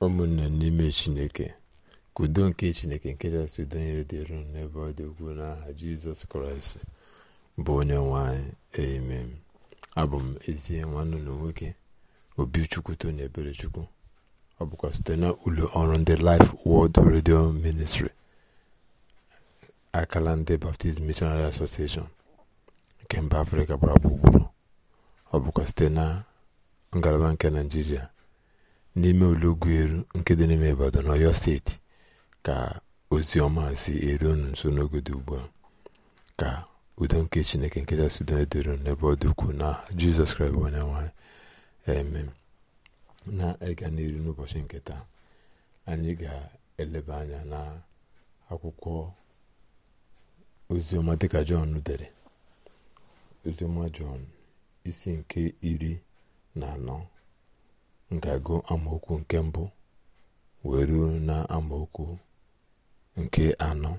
ụmụnne n'ime chineke ka udo nke chineke nke kachasị udo nyere n'ebe ọ dị ukwuu n'aha jizọs kraịst bụ onye nwe anyị amen abụ m ezie nwanne ụlọ nwoke obi chukwuto na ebere chukwu ọ bụkwa site na ụlọ ọrụ ndị Life World Radio Ministry akala ndị baptism Missionary Association nke mba Afrịka gbara gburugburu ọ bụkwa site na ngalaba nke naijiria n'ime olọgwu eru nke dị n'ime Ibadan ọyọ steeti ka ozi ọma si eru nso n'ogodo ugbu a ka udo nke Chineke nke si udo edoro n'ebe ọ dị na Jizọs Kraịst bụ onye nwanyị eme na-ịga n'iru n'ụbọchị nke anyị ga-eleba anya na akwụkwọ oziọma dịka jọn dere oziọma jọn isi nke iri na anọ ga-agụ amaokwu nke mbụ wee ruo na amaokwu nke anọ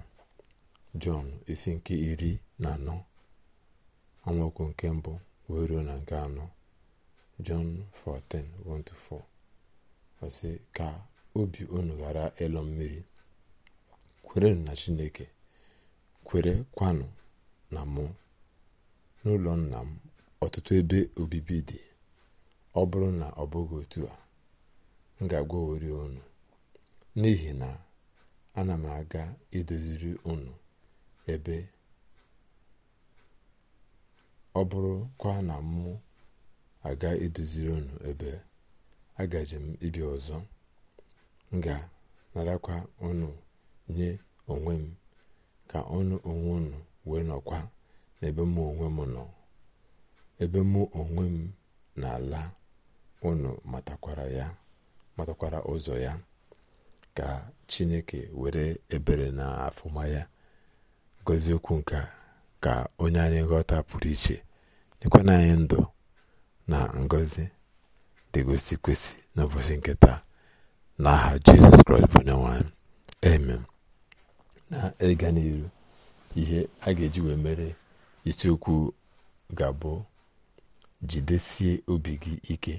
jọn isi nke iri na anọ amaokwu nke mbụ wee ruo na nke anọ jọn 14:1-4 ka obi unu ghara ịlọ mmiri kwerenụ na chineke kwere kwanụ na mụ n'ụlọ nna m ọtụtụ ebe obibi dị ọ bụrụ na ọ bụghị otu a m ga-agwawori unu n'ihi na ana m aga idoziri unu ebe ọ bụrụkwa na mụ aga idoziri unu ebe agaje m ibi ọzọ m ga-narakwa unu nye onwe m ka ọnụ onwe unu wee nọkwa n'ebe mụ onwe m nọ ebe mụ onwe m na-ala unu matakwara ụzọ ya ka chineke were ebere na afụma ya gozie okwu nke ka onye anyị ghọta pụrụ iche nyekwana anyị ndụ na ngọzi dịgosi kwesị n'ụbọchị nke taa n'aha jizọs kraịst bụ onye nwanyị amen na ịga n'iru ihe a ga-eji wee mere isiokwu ga-abụ jidesie obi gị ike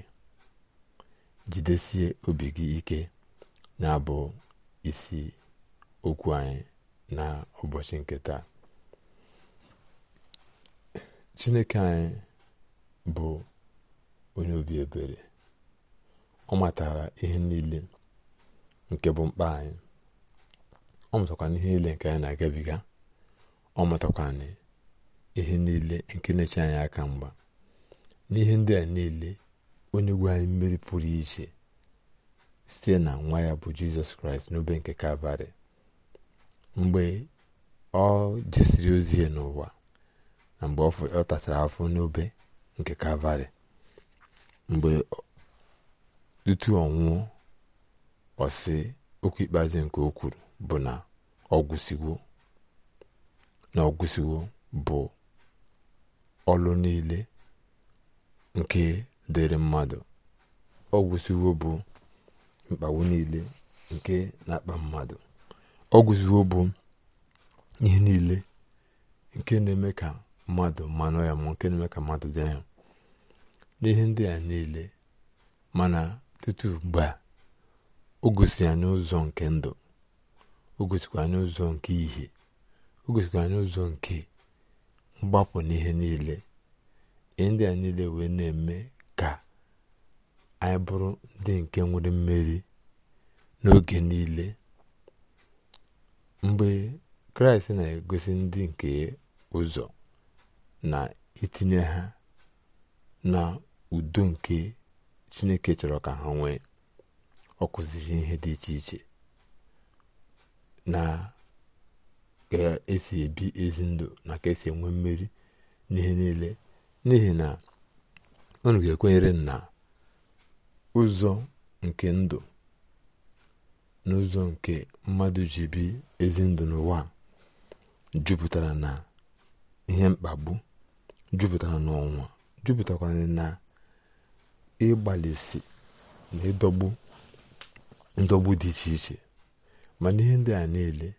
jidesie obi gị ike na-abụ isi okwu anyị na ụbọchị nke taa chineke anyị bụ onye obi ebere ọ matara ihe niile nke bụ mkpa anyị ọ matakwa ihe niile nke anyị na-agabiga ọ matakwa ihe niile nke na-eche anyị aka mgba n'ihe ndị a niile onye gwe anyị mmeri pụrụ iche site na nwa ya bụ jizọs kraịst n'obe nke kalvarị mgbe ọ jesiri ozi ya n'ụwa na mgbe ọ tatara afọ n'obe nke kalvarị mgbe tutu ọ nwụọ okwu ikpeazụ nke o kwuru bụ na ọ bụ ọlụ niile nke dịrị mmadụ ọ gwụsiwo bụ mkpagbu niile nke na-akpa mmadụ ọ gwụsiwo bụ ihe niile nke na-eme ka mmadụ mmanụ ya ma nke na-eme ka mmadụ dị ya n'ihe ndị a niile mana tutu ugbu a o gosi anyị ụzọ nke ndụ o gosikwa anyị ụzọ nke ihe o gosikwa anyị ụzọ nke mgbapụ n'ihe niile ihe ndị a niile wee na-eme anyị bụrụ ndị nke nwere mmeri n'oge niile mgbe kraịst na-egosi ndị nke ụzọ na itinye ha na udo nke chineke chọrọ ka ha nwee ọ ihe dị iche iche na ga-esi e ebi ezi ndụ na ka esi enwe mmeri n'ihe niile n'ihi na unu ga-ekwenyere na ụzọ nke ndụ n'ụzọ nke mmadụ ji bi ezi ndụ n'ụwa jupụtara na ihe mkpagbu jupụtara na ọnwa jupụtakwara na ịgbalịsi na ịdọgbu ndọgbu dị iche iche mana ihe ndị a niile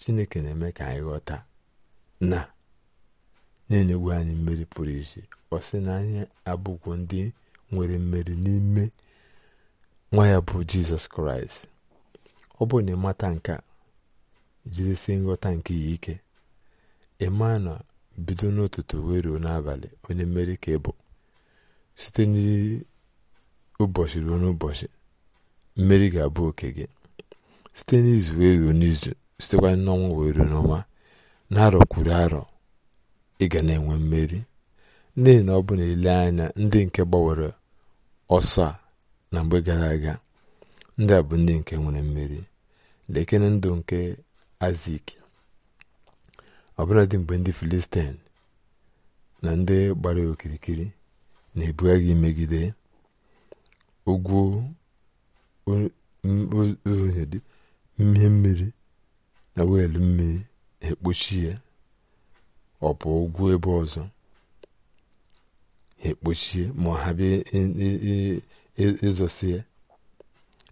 chineke na-eme ka anyị ghọta na na-enyegwu anyị mmeri pụrụ iche ọ sị na anyị abụkwu ndị nwere mmeri n'ime nwa ya bụ jizọs kraịst ọ bụrụ na ịmata nke a jidesi nghọta nke ya ike ịma na bido n'ụtụtụ wee ruo n'abalị onye mmeri ka ịbụ site n'ụbọchị ruo n'ụbọchị mmeri ga-abụ oke gị site n'izu wee ruo n'izu sitekwa n'ọnwa wee ruo n'ọnwa na-arọ kwuru arọ ị ga na-enwe mmeri n'ihi na ọ bụ na ile anya ndị nke gbanwere ọsọ a na mgbe gara aga ndị a bụ ndị nke nwere mmeri lekere ndụ nke azik ọbụladị mgbe ndị filistin na ndị gbara okirikiri na agha megide ugwu ozonyedị mmiri mmiri na wiil mmiri na-ekpuchi ya ọ bụ ugwu ebe ọzọ ha ekpochie ma ha bịa ịzọsie e, e, e,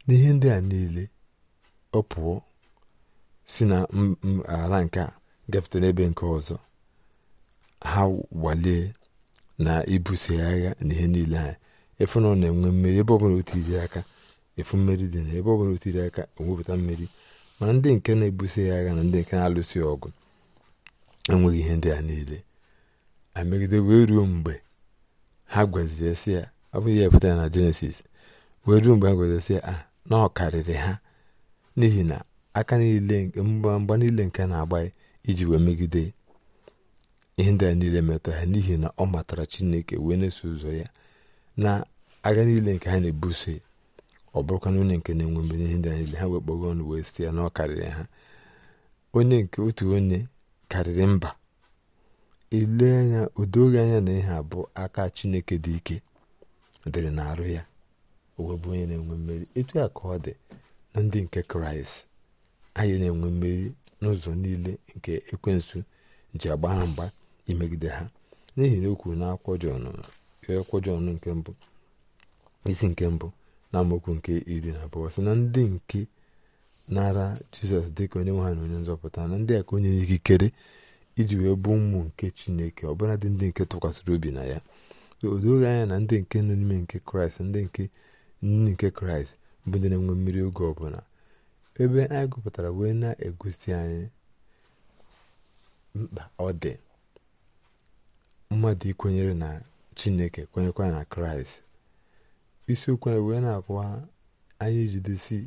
n'ihe ndị a niile ọ pụọ si na ala nke a ebe n'ebe nke ọzọ ha gbalie na ibuso ya agha na ihe niile ha efu na ọ na-enwe mmeri ebe ọbụla otiri aka efu mmeri dị na ebe ọbụla otiri aka enwepụta mmeri mana ndị nke na-ebuso ya agha na ndị nke na-alụso ọgụ enweghị ihe ndị a niile a megide wee ruo mgbe ha gwezie sị ya ọ bụ ihe na jenesis wee ruo mgbe ha gwezie sị ya ah, na ọ karịrị ha n'ihi na aka niile mgba niile nke na-agba iji wee megide ihe ndị a niile metara ha n'ihi na ọ matara chineke wee na-eso ụzọ ya na aga niile nke ha na-ebuso ọ bụrụkwana onye nke na-enwe mgbe n'ihe ndị a niile ha wee kpọga ọnụ wee sị ya na ọ karịrị ha onye nke otu onye karịrị mba ele anya o anya na ihe abụ aka chineke dị ike dịrị na-arụ ya owe bụ onye na-enwe mmeri etu a ka ọ dị na ndị nke kraịst anyị na-enwe mmeri n'ụzọ niile nke ekwensu ji agba ha mgba imegide ha n'ihi na o na akwụkwọ nke mbụ isi nke mbụ na amaokwu nke iri na abụọ sị na ndị nke nara jizọs dịka onye nwe ha na onye nzọpụta na ndị a ka onye ikikere iji wee bụ ụmụ nke chineke ọbụladị ndị nke tụkwasịrị obi na ya o doghị anya na ndị nke nọ n'ime nke kraịst ndị nke nne nke kraịst bụ ndị na-enwe mmiri oge ọbụla ebe anyị gụpụtara wee na-egosi anyị mkpa ọ dị mmadụ ikwenyere na chineke kwenyekwa na kraịst isiokwu anyị wee na-akwa anyị ijidesi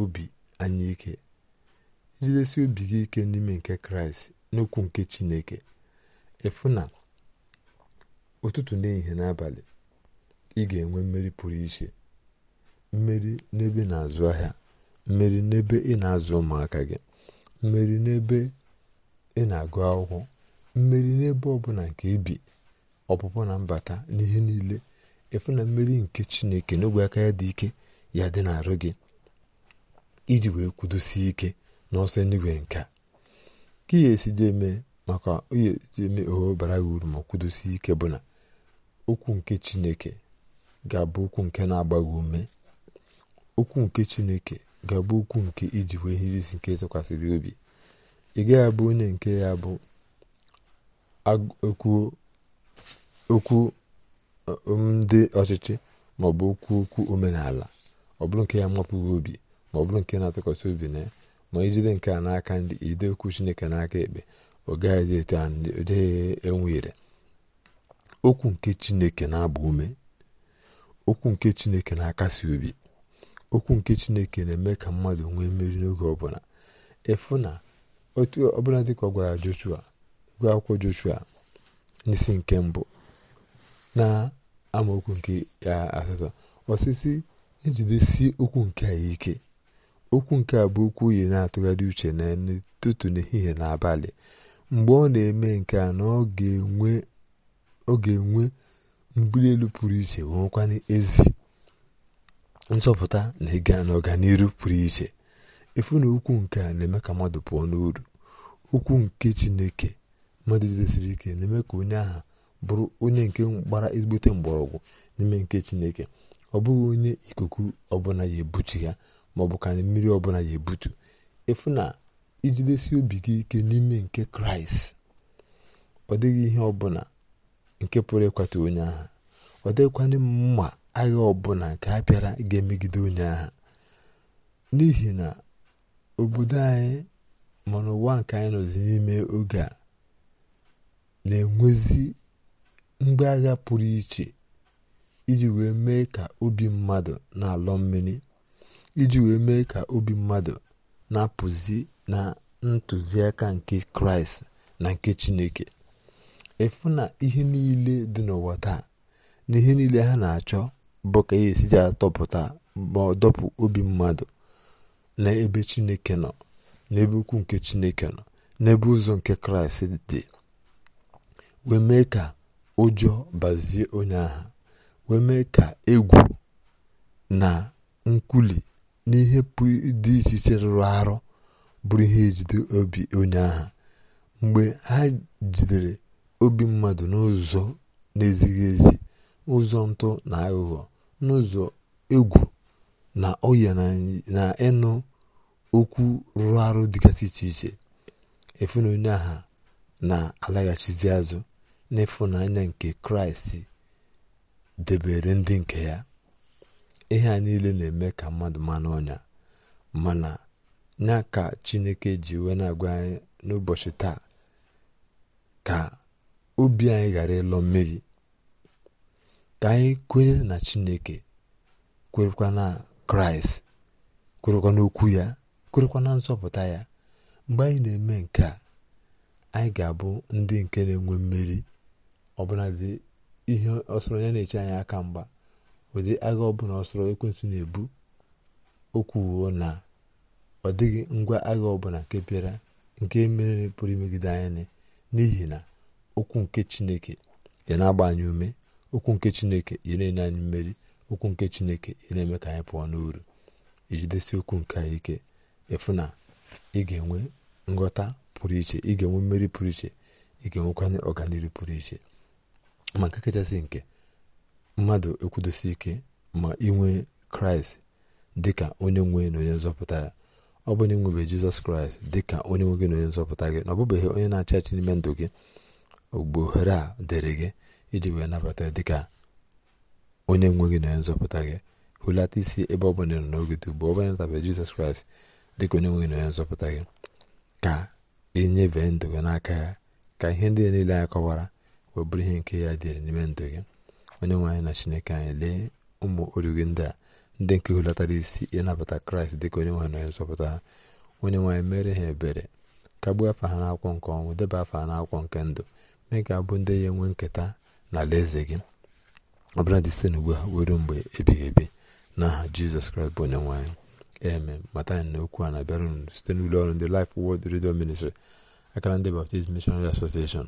obi anyị ike ijidesi obi gị ike n'ime nke kraịst n'okwu nke chineke efu na ụtụtụ n'ehihie n'abalị ị ga-enwe mmeri pụrụ iche mmeri n'ebe na-azụ ahịa mmeri n'ebe ị na-azụ ụmụaka gị mmeri n'ebe ị na-agụ akwụkwọ mmeri n'ebe ọbụla nke ibi ọpụpụ na mbata n'ihe niile efu na mmeri nke chineke n'ogwe aka ya dị ike ya dị n'arụ gị iji wee kwudosie ike n'ọsọ eluigwe nke a ka ihe esiji eme maka ihe esiji eme oho bara gị uru ma kwudosie ike bụ na okwu nke chineke ga-abụ okwu nke na-agba ume okwu nke chineke ga-abụ okwu nke iji wee ihe isi nke tụkwasịrị obi ị gaghị abụ onye nke ya bụ okwu ndị um, ọchịchị maọbụ okwu okwu omenala ọ bụrụ nke ya mapụghị obi maọbụrụ nke na-atụkwasị obi na ya ma ijide nke a n'aka ndị ide okwu chineke n'aka ekpe ọ gaghịzi etu a ndị enwere okwu nke chineke na-agba ume okwu nke chineke na-akasi obi okwu nke chineke na-eme ka mmadụ nwee mmeri n'oge ọbụla efu na otu ọbụla dịka ọ gwara joshua gwa akwụkwọ joshua n'isi nke mbụ na amaokwu nke asatọ osisi ejidesi okwu nke a ike okwu nke a bụ okwu uyi na-atụgharị uche n'ụtụtụ n'ehihie na abalị mgbe ọ na-eme nke a na ọ ga-enwe mbuli elu pụrụ iche nwekwana ezi nsọpụta na ịga n'ọganihu pụrụ iche efu na okwu nke a na-eme ka mmadụ pụọ n'uru okwu nke chineke mmadụ jidesiri ike na-eme ka onye aha bụrụ onye nke gbara ezigbote mgbọrọgwụ n'ime nke chineke ọ bụghị onye ikuku ọbụla ya ebuchi ya maọbụ ka mmiri ọbụla ya ebutu efu na ijidesi obi gị ike n'ime nke kraịst ọ dịghị ihe ọbụla nke pụrụ ịkwata onye agha ọ dịghịkwana mma agha ọbụla nke a bịara ga-emegide onye agha n'ihi na obodo anyị ma n'ụwa nke anyị nọzi n'ime oge a na-enwezi mgbe agha pụrụ iche iji wee mee ka obi mmadụ na-alọ mmiri iji wee mee ka obi mmadụ na-apụzi na ntụziaka nke kraịst na nke chineke efu na ihe niile dị n'ụwa taa na ihe niile ha na-achọ bụ ka ihe esiji atọpụta ma ọ dọpụ obi mmadụ n'ebe chineke nọ n'ebe ukwu nke chineke nọ n'ebe ụzọ nke kraịst dị wee ka ụjọ bazie onye agha wee mee ka egwu na nkwuli n'ihe pụrụ dị iche iche rụrụ arụ bụrụ ihe ejide obi onye agha mgbe ha jidere obi mmadụ n'ụzọ na-ezighị ezi ụzọ ntụ na aghụghọ n'ụzọ egwu na ọya na ịnụ okwu rụrụ arụ dịgasị iche iche efuna onye agha na-alaghachizi azụ n'ịfụnanya nke kraịst debere ndị nke ya ihe a niile na-eme ka mmadụ ma ọnya mana ya ka chineke ji wee na-agwa anyị n'ụbọchị taa ka obi anyị ghara ịlọ mmiri ka anyị kwenye na chineke kwerekwa na kraịst kwerekwa n'okwu ya kwerekwa na nzọpụta ya mgbe anyị na-eme nke a anyị ga-abụ ndị nke na-enwe mmeri ọbụladị ihe ọsọrọ ya na-eche anyị aka mgba ụdị agha ọbụla ọsọrọ ekwentị na-ebu o kwuo na ọ dịghị ngwa agha ọbụla nke bịara nke mere pụrụ imegide anya n'ihi na okwu nke chineke ya na-agba anyị ume okwu nke chineke ya na-enye anyị mmeri okwu nke chineke ya na-eme ka anyị pụọ n'uru ijidesi okwu nke anyị ike ịfụ na ị ga-enwe nghọta pụrụ iche ị ga-enwe mmeri pụrụ iche ị ga-enwekwanye ọganihu pụrụ iche ma nke kachasị nke mmadụ ekwudosi ike ma inwe kraịst dịka onye nwe na onye nzọpụta ya ọ bụ na ịnwebe jizọs kraịst dịka onye nwe gị na onye nzọpụta gị na ọ onye na-achị achị n'ime ndụ gị ugbo ohere a dịrị gị iji wee nabata dịka onye nwe gị na onye nzọpụta gị hụlata isi ebe ọ bụla n'oge dị ugbu ọ bụla jizọs kraịst dịka onye nwe gị na onye nzọpụta gị ka enyebe ndụ gị n'aka ya ka ihe ndị niile anyị kọwara wee bụrụ ihe nke ya dịrị n'ime ndụ gị onye nwe anyị na chineke anyị lee ụmụ origi ndị a ndị nke hulatara isi ịnabata kraịst dịka onye nwe na onye nzọpụta onye nwaanyị mere ha ebere kagbuo afa ha n'akwụkwọ nke ọnwụ deba afa ha n'akwụkwọ nke ndụ mee ka abụ ndị ya enwe nketa na alaeze gị ọ bụla dị site n'ugbu a were mgbe ebighị ebi n'aha jizọs kraịst bụ onye nwe anyị eme mata anyị na okwu a na-abịara unu site n'ụlọ ọrụ ndị Life Word Radio Ministry akara ndị Baptist Missionary Association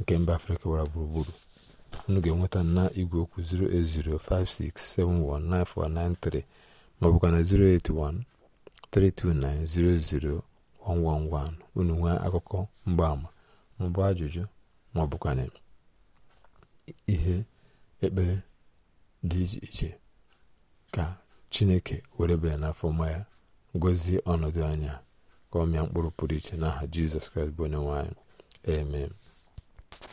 nke mba afrịka gbara gburugburu unu ga-enweta na igwe okwu 08056719493 ma ọ bụkwa na unu nwee akụkọ mgbaama maọbụ ajụjụ maọbụ ihe ekpere dị iche iche ka chineke were banye n'afọ ma ya gọzie ọnọdụ anya ka ọmịa mkpụrụ pụrụ iche n'aha jizọs kraịst bụ onye nwanyị.